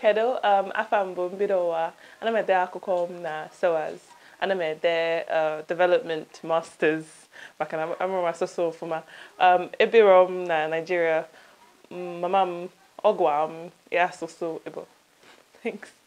kedụ um afọ mbụ mbido ụwa ana m ede akụkọ m na SOAS ana m ede development masters maka na amụrụ m asụsụ ọfụma um ebiro m na Nigeria mama m ọgwa m ya asụsụ Igbo thanks